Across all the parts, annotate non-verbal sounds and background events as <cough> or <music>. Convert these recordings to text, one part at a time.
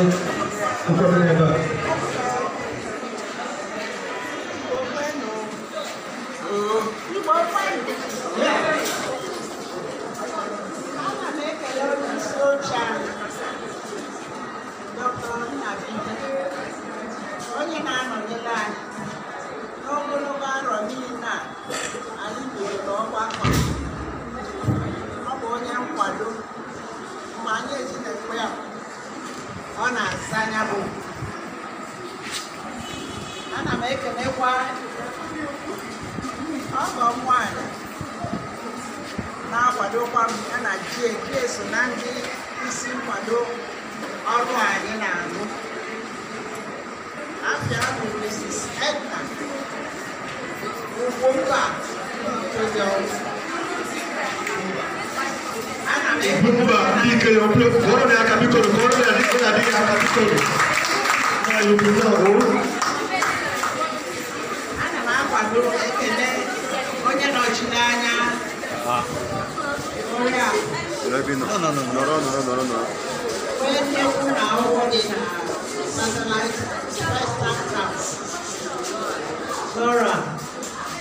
العزيز وكل العباد ọ na-asa anya bụ ana m ekenekwa ọgọ m nwanyị na-akwadokwa m ya na jeke so na ndị isi nkwado ọrụ anyị na-arụ afia bụ Mrs. Edna Ugwumba ọrụ. n o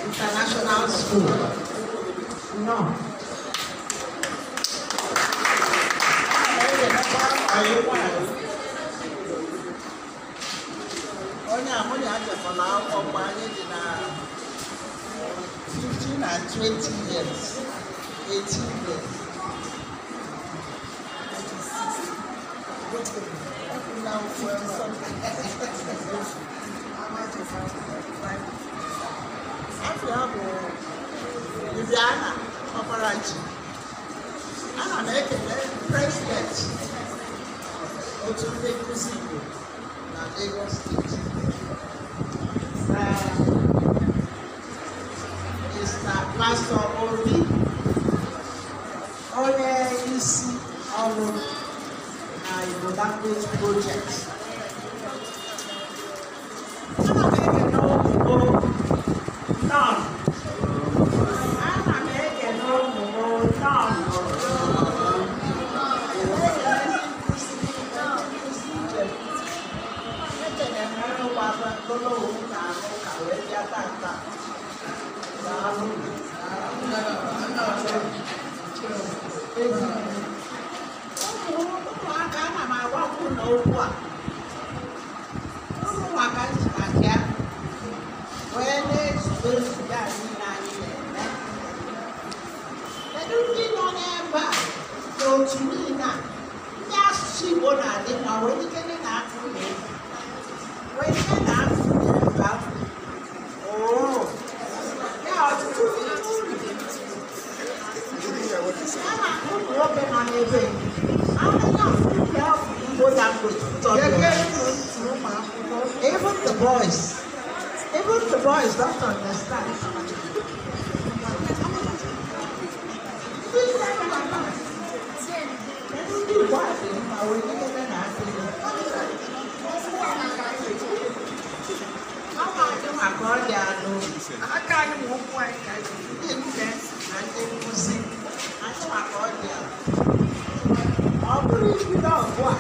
International School. No. eighteen years. Now, forty something. How much is that? After I have Viviana Operachi, ana m ekele president otu ndị nkụzi Igbo na Lagos State. these projects. Thank <laughs> you. okwu okwu a uru maka njimaji ya wee na-ezube nzube a niile anyị na-eme kedu ndị nọ n'ebe a otu niile a ndị asụsụ Igbo na-adị ma wee ikene na akụ na egwu wee ikene quá thì mà quên cái cái cái nạn thì Mà có già luôn Ở cái một quay cái Nhìn cái Anh em mua gì Anh có mà có già Ở cái gì đó quá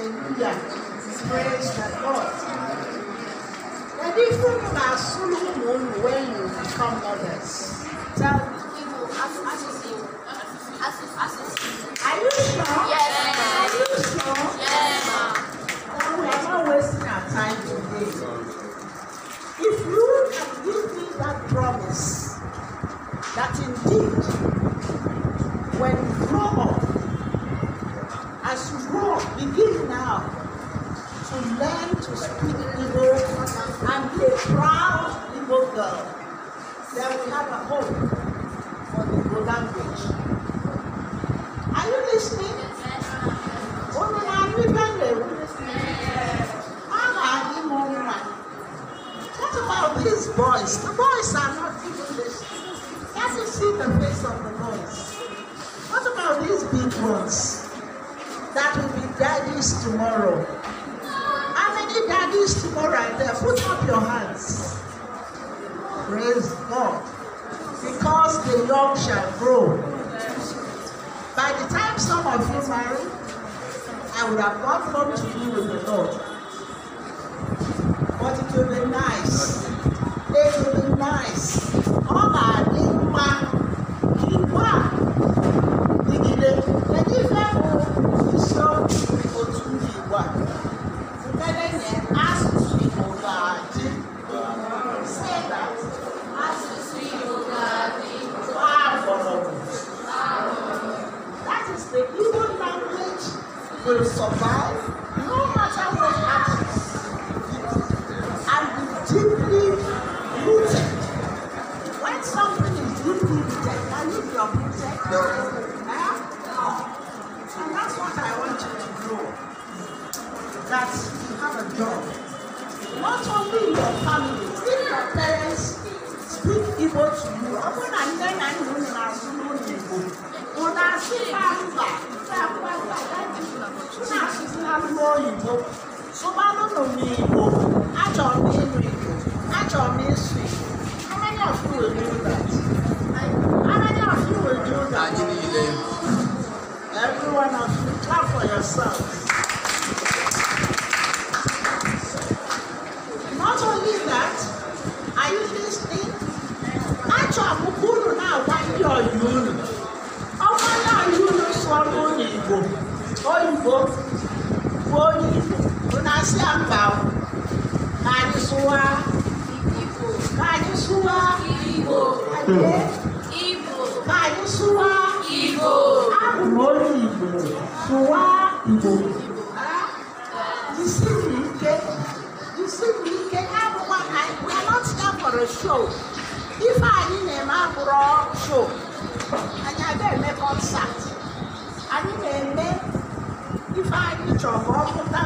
Hallelujah. Praise the Lord. The difference are soon when you become mothers. Praise God. Because the young shall grow. By the time some of you marry, I would have gone home to be with the Lord. But it will be nice. It will be nice will survive no matter what happens and be deeply rooted. When something is deeply rooted, can you be uprooted? No. Eh? No. And that's what I want you to know. That you have a job. Not only in your family, if your parents speak Igbo to you, often and then I know in our Igbo. Una súpà rúbà tá a fún àgbà láti túnà sí lálùmọ́ òyìnbó. Súpà lónà mi ìbò, achọrọ m ịnụ Igbo, achọrọ m ịsụ Igbo. Amanya ọfụ wee do that. Amanya Everyone of you, clap for yourselves. Igbo. Ka anyị sụwa Igbo. Abụ m onye Igbo. Sụwa Igbo. Jisi m ike. Jisi m ike. Abụkwa ka anyị. We are not here for a show. Ife anyị na-eme abụrụ show. Anyị aga eme concert. Anyị na-eme ife anyị chọrọ ka ọ pụta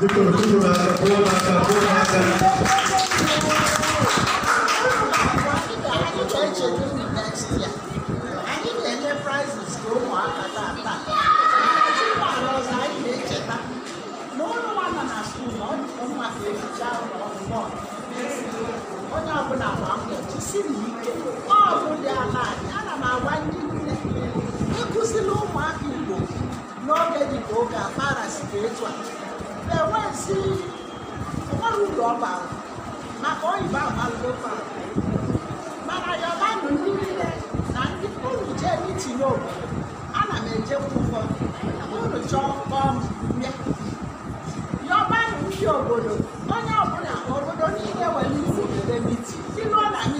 Victor, Victor, Victor, Victor, Victor, Victor, Victor, siri ike ọ bụ dị ala ana m agwa ndị nne ịkụzila ụmụaka igbo n'oge dị ka oge akpara site etu a na-enwezi ụmara uru ọ bara maka oyibo agbalụofa mana yọbanụ ndị niile na ndị unu jee mitin obodo ana m ejekwa ụfọdụ unu chọọ kpọọ m bịa yọbanụ ndị obodo onye ọbụla obodo niile nwere isi obodo mitin si n'ụlọ anyị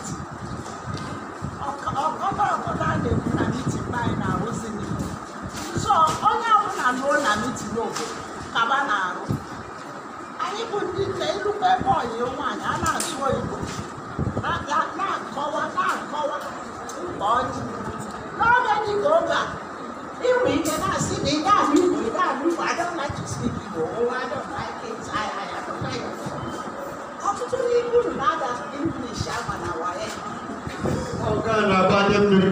n'obodo kaba na-arụ anyị bụ ndị nke ilukpe bọyị nwaanyị a na-asụ oyibo na-akọwa na-akọwa mkpa ọjị n'oge dị ka oge a inwe ike na-asị na ị ga-ahụ igbo ị ga-ahụ igbo adọnachisi igbo nwa adọnaike ọtụtụ n'ibu na-ada English agba na waye ọga na-abanye mmiri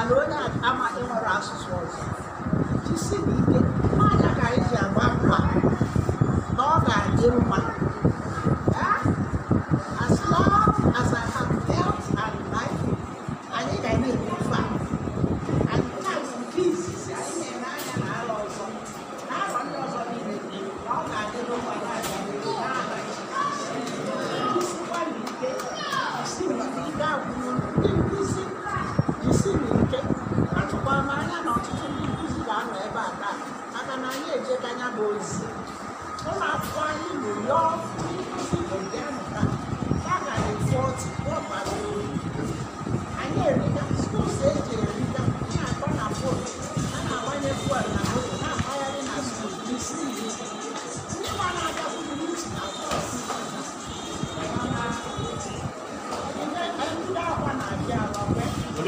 ala onye amaghị nwere asụsụ ọzọ jisi n'ike n'anya ka anyị ji agwa mkpa na ọ ga-adị mma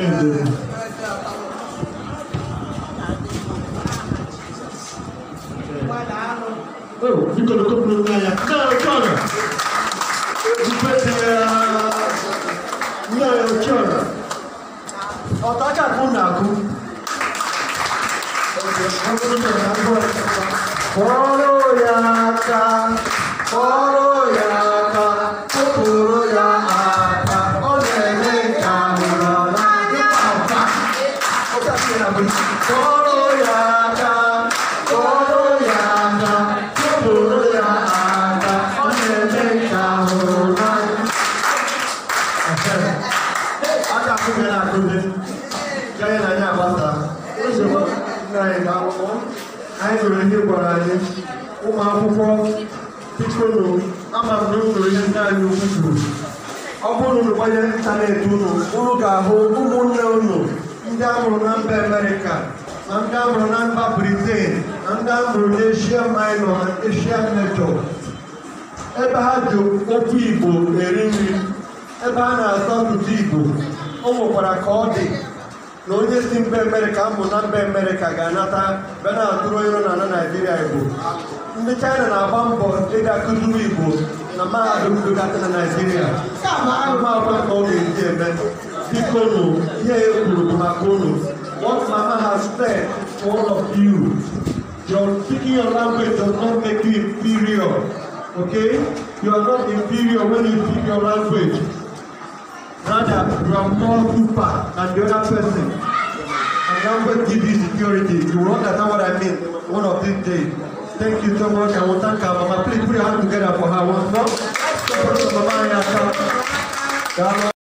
ended. Oh, you're uh, gonna go Naya. Naya Connor! You bet there. Naya Connor. Oh, that got one now. Follow Yaka, follow Yaka. akụbe na akụbe nke anyị na anyị agbasara nsogbu nna anyị akwụkwọ anyị nụrụ ihe gwara anyị ụmụ akwụkwọ bikonu ama m na ihe ndị anyị ukwu kwuru ọ bụrụ unu gbanye ịntanetị unu unu ga-ahụ ụmụnne unu ndị amụrụ na mba amerịka na ndị amụrụ na mba briten na ndị amụrụ na eshia minọ na eshia mejọ ebe ha ji okwu igbo eri nri ebe ha na-asọ ọtụtụ igbo o nwekwara ka ọ dị na onye si mbe mere ka mmụta mbe mere ka ga-anata bịa na atụrụ iro na ala naijiria igbo ndị chaịna na-agba mbọ ịga kụzuru igbo na mahadum dugata na naijiria ahụmahụ ka ọ ga-eji eme biko nụ ihe e kwuru bụ maka unu what mama has said to all of you your speaking your language does not make you inferior okay you are not inferior when you speak your language Brother, you are more super than the other person. And I'm going to give you security. You will understand what I mean one of these days. Thank you so much. I will thank our mama. Please put your hands together for her once more. Mama,